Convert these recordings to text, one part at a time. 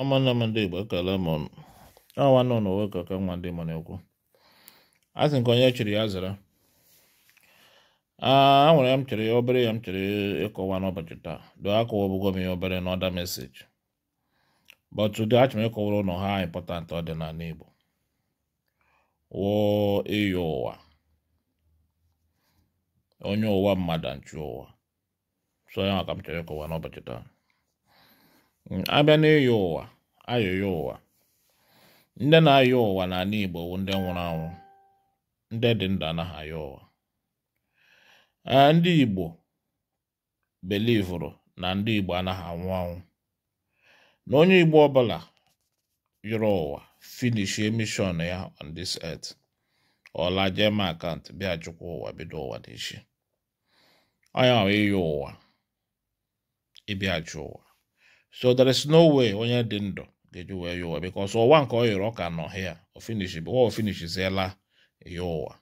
ụmụnne m ndị Igbo ekele m ọnụ nwanne nọ nwe ka ka nwa ndị Igbo na-ekwu a nke onye chiri ya zara a nwere m chere obere ya m chere ịkọwa n'ụbọchị taa doo akọwa ọbụgo m ya obere na ọda but today achọrọ m ịkọwara ụlọ ha important ọ dị n'ala Igbo wụọ ịyọ ụwa onye ụwa mmadụ nchụ ụwa so ya ka m chere ịkọwa n'ụbọchị taa Mm, abịa n'ịyọ ụwa ayọyọ ụwa ndị na-ayọ ụwa n'ala Igbo bụ ndị nwụrụ anwụ ndị dị ndụ anaghị ayọ ụwa ndị Igbo belivuru na ndị Igbo anaghị anwụ anwụ na onye Igbo ọbụla yọrọ ụwa finish mission ya on this earth ọla jee ma akant bịa chukwu ụwa bido ụwa n'echi onye ahụ ịyọ ụwa ịbịa chụ ụwa so there is no way onye dị ndụ ga-eji wee ya ụwa because ọwa nke ọ yọrọ ka nọ hịa ofinishi bụ ọ finishiziela ya ụwa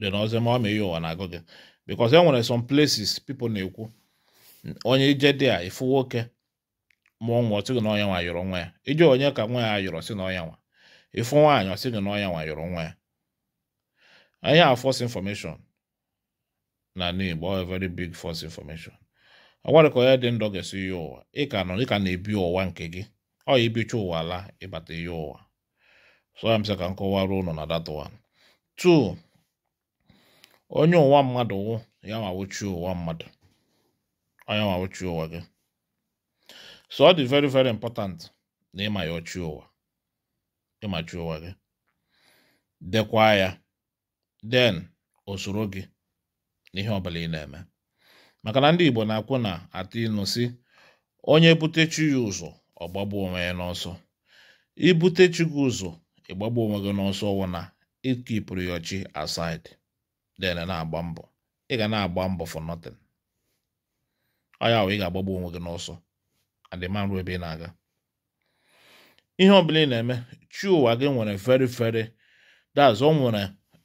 dị n'ọzọ ma ọ ma ya ụwa na-agụ gị because e nwere some places people na-ekwu onye ije dị a ifu nwoke mụọ nwa ọsị gị na ọnya nwa yọrọ nwa ya ije onye ka nwa ya yọrọ sị na ọnya nwa ifu nwaanyị ọsị gị na ọnya nwa yọrọ nwa ya anyị a false information na n'Igbo very big false information agwarịka onye dị ndụ ga-esi ya ụwa ị ka nọ ị na-ebi ụwa nke gị ọ ya ibicha ụwa la ịbata ihe ụwa so ya msị ka m kọwara ụnụ na that one two onye ụwa mmadụ wụ ya ma wuchie ụwa mmadụ onye ma wuchie ụwa gị so ọ dị very very important na ịma ya ochie ụwa ịmachi ụwa gị dekwa ya den osoro gị n'ihe ọbụla ị na-eme maka na ndị Igbo na-akwụ na atụ ịnụ si onye butechi ya ụzọ ọgbagbu onwe ya n'ọsọ ibutechi gị ụzọ ịgbagbu onwe gị n'ọsọ wụ na ịkipụrụ ya ọchị aside then na-agba mbọ ị ga na-agba mbọ for ọya ị ga-agbagbu onwe gị n'ọsọ adịmarụ ebe ị na-aga ihe ọ bụla ị na-eme chi ụwa gị nwere very very that's o nwere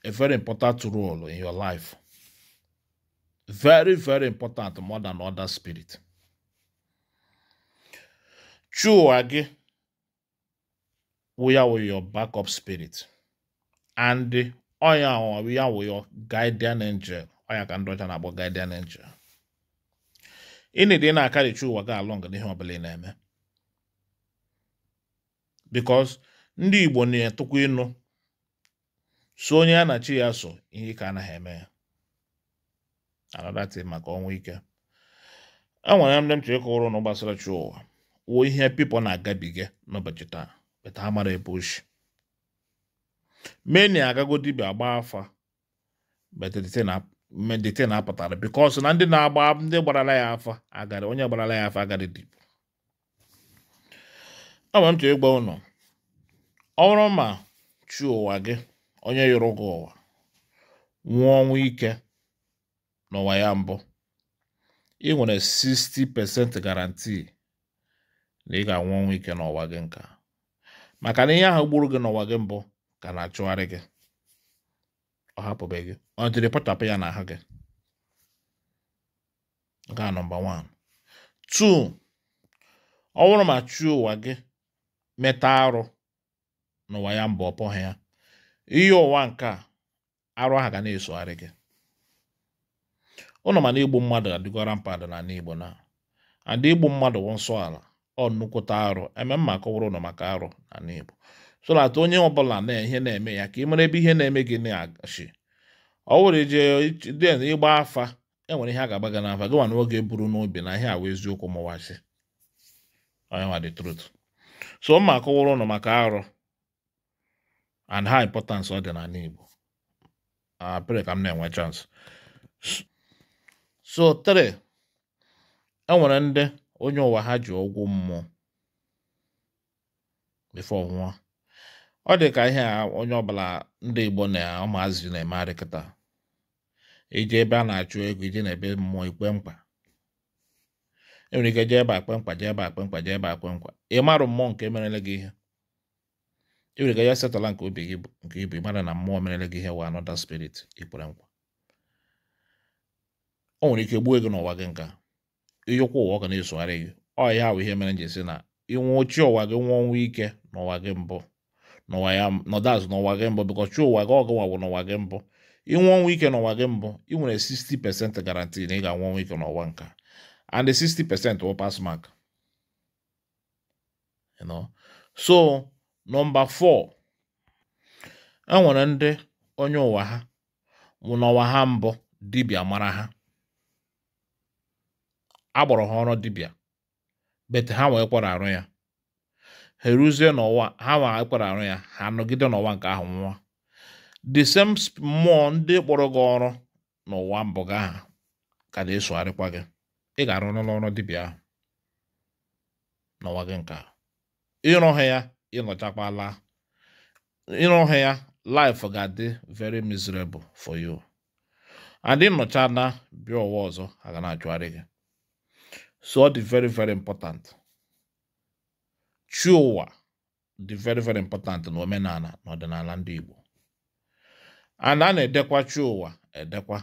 a very important role in your life very very important more than other spirit chụwa gị wụya wụ your backup spirit and ọnya ya wụ your guardian angel ọnya ka ndị ọcha na-akpọ guardian angel ịnịdị na-akarị chụwa gị along n'ihe ọbụla ị na-eme because ndị Igbo na-etụkwa ịnụ so onye a na achị ya so ihe ka anaghị eme ya anadatin maka ọnwụ ike enwere ndị m chọrọ ịkọwara ụnụ gbasara chi ụwa wuo ihe pipo na-agabiga n'ụbọchị taa beta amara mara ebe ochi meni agago dibịa agba afa medite na-apụtara bikọs na ndị na-agba ndị gbarala ya afa agarị onye gbarala ya afa agarị dibụ enwere m chọrọ ịgwa ụnụ ọ ma chi ụwa gị onye yọrọ gị ụwa nwụọ ọnwụ ike n'ụwa ya mbụ ị nwere 60% garantii na ị ga-anwụ ọnwụ ike n'ụwa gị nka maka na ihe ahụ gburu gị n'ụwa gị mbụ ka na-achụgharị gị ọ hapụbe gị ọ jiri pụtapụ ya n'ahụ gị nke a 1 2 ọ bụrụ ma chi ụwa gị meta arụ n'ụwa ya mbụ ọ pụghị ya ihe ụwa nke arụ ahụ ga na-esogharị gị ụnụ mana igbu mmadụ adịgora mpadụ na n'igbo na adị igbu mmadụ nsọ ala ọ nnukwute arụ eme mma kọwara ụnụ maka arụ na n'igbo so na atụ onye ọbụla na ihe na-eme ya ka ị mara ebe ihe na-eme gị na-agachi ọ wụrụ ije den ịgba afa enwere ihe a ga-agba gị n'afa gị nwa na oge buru n'obi na ihe awa eziokwu mụwazi onye nwa the truth so mma kọwara ụnụ maka arụ and how importance ọ dị n'ala Igbo apịrị ka m na-enwe chance So 3 e ndị onye ụwa ha ji ọgwụ mmụọ before nwụọ ọ dị ka ihe a onye ọbụla ndị Igbo na ụmụazị na-eme adịkịta iji ebe a na-achụ ego iji na ebe mmụọ ikpe mkpa enwere ike jee ebe akpe mkpa jee ebe akpe mkpa jee ebe akpe mkpa ị marụ mmụọ nke merele gị ihe enwere ike ya setụla nke obi gị nke ibu ị mara na mmụọ merele gị ihe wa anọda spirit ikpere nkwa. o nwere ike gbuo gị n'ụwa gị nka ịyọkwa ụwa ọ ga na-esogharị gị ọ ya bụ ihe mere nji si na ịnwụ chi ụwa gị nwụọ ọnwụ ike n'ụwa gị mbụ n'ụwa ya nọdụ azụ n'ụwa gị mbụ bịkọ chi ụwa gị ọgụ nwawụ n'ụwa gị mbụ ịnwụ ọnwụ ike n'ụwa gị mbụ ị nwere 60% garanti na ị ga-anwụ ọnwụ ike n'ụwa nka and 60% wụ pass mark you know so nọmba 4 e nwere ndị onye ụwa ha nwụ n'ụwa ha mbụ dibịa mara ha agbọrọ ha ọrụ dibịa bet ha wee kwara arụ ya ha eruzie n'ụwa ha wee kwara arụ ya ha nọgide n'ụwa nke ahụ nwa the same mmụọ ndị kpọrọ gị ọrụ n'ụwa mbụ gị aha ka na-esogharịkwa gị ị ga-arụ n'ọrụ dibịa ahụ n'ụwa gị nke a ịrụ ha ya ịnọchakwala ịrụ ha ya life ga-adị very miserable for you and nnọcha na bịa ụwa ọzọ aga na-ajụgharị gị So dị very very important. Chi ụwa dị very very important n'omenala omenala ndị Igbo. Ana a na-edekwa chi edekwa edekwa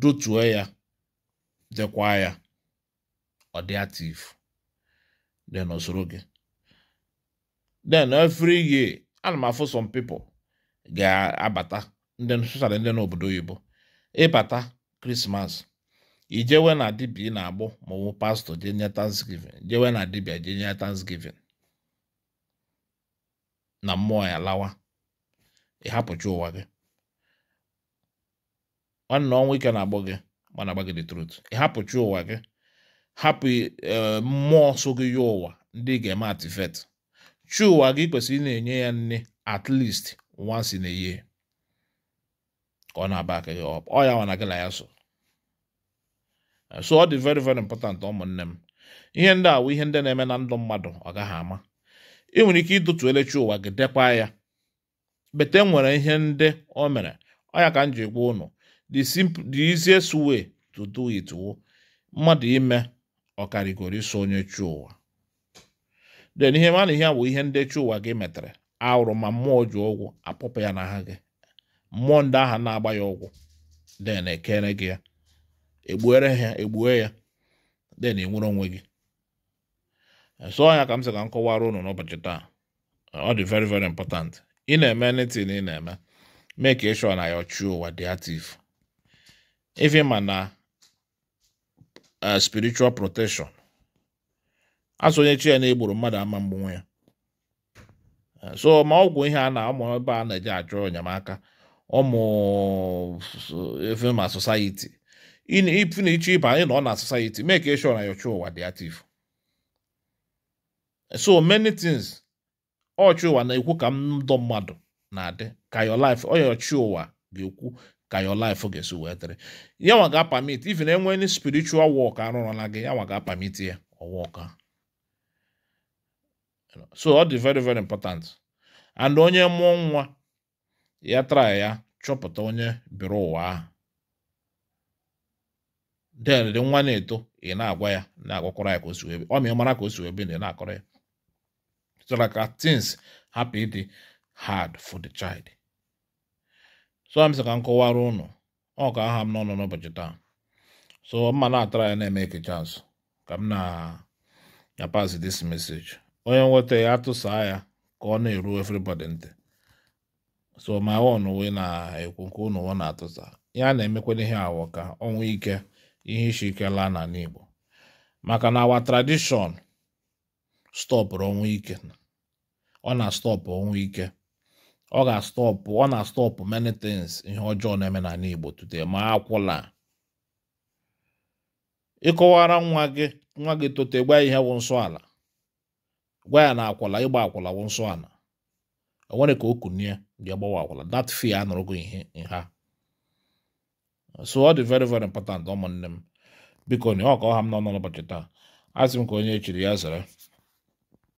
dotue ya dekwa ya ọ dị active dị gị. Then every year ana m some people ga-abata ndị sochara ndị n'obodo oyibo ịbata Christmas jewe na dibia ị na-agbụ ma ọ bụ pastọ je nye thanksgiving jewe na dibia je nye thanksgiving na mmụọ ya lawa ịhapụcha ụwa gị nwanne ọnwa ike na agbụ gị mana agba gị the truth ịhapụcha ụwa gị hapụ e, mmụọ so gị ya ụwa ndị ga-eme atifet chi ụwa gị kwesịrị ị na-enye ya nne at least once in a year ka ọ na-aba aka gị ọ ya nwa na gị na ya so so ọ dị very very important ụmụnne m ihe ndị awụ ihe ndị na-eme na ndụ mmadụ ọ gaghị ama ị nwere ike ịdụtu elechi ụwa gị dekwa ya bete e nwere ihe ndị o mere ọ ya ka m ji gwa ụnụ the easiest way to do it wo mmadụ ime ọkarịgoro iso onye chi ụwa den ihe mana ihe bụ ihe ndị chi ụwa gị metere arụ ma mmụọ ji ụgwụ apụpụ ya n'aha gị mmụọ ndị aha na-agba ya ọgwụ den ekere gị ya egbuere ha egbue ya then enwere onwe gị e so ya ka m sị ka m kọwara ụnụ n'ụbọchị taa ọ dị very very important ị na-eme anything ị na-eme make sure na ya true ụwa dị active if ma na eh, spiritual protection chi ya na egburu mmadụ ama mgbanwe ya eh, so ma ọgwụ ihe a na ụmụ ebe a na-eji achọ enyemaka ụmụ efe eh, ma na-eche ịba anyị nọ na society make sure na your ụwa dị active so many things ọchị ụwa na-ekwu ka ndụ mmadụ na-adị ka your life ọchị ụwa ga-ekwu ka your life ga-esi wee dịrị ya ga-apamit even enwe any spiritual work arụrụla gị ya nwa ga-apamit ya ọwụka so ọ dị very very important and onye mụọ nwa ya try ya chọpụta onye biri ụwa ahụ den dị nwa na-eto ị na-agwa ya na-agwakwara ya ka o si ebe ọ ma mara ka o si ebe na ị na-akọrọ ya so that ka tins hapụ ịdị hard for the child so m sị ka m kọwara ụnụ ọ ka aha m n'ọnụ n'ụbọchị taa so mma na-atara ya na-eme ekecha azụ ka m na pass this message onye nweta ya atụsaa ya ka ọ na-eru everybody ntị eh. so ma won wee na-ekwu nke ụnụ na-atụsa ya na-emekwana ihe awọ ka ọ nwee ike ihe isi ike laa n'ala Igbo maka na awa tradition stọpụrụ ọnwụ ike ọ na-astọpụ ọnwụ ike ọ ga-astọpụ ọ na-astọpụ many things ihe ọjọọ na-eme n'ala Igbo today ma akwụla ịkọwara nwa gị nwa gị tote gwa ihe wụ nsọ ala gwa ya na akwụla ịgba akwụla wụ nsọ ala o nwere ka o kunie bịa gbawa akwụla that nụrụ gị ihe nha so ọ dị very very important ụmụnne m biko na ọ ka ọha m nọ n'ụbọchị taa asị m ka onye echiri ya zere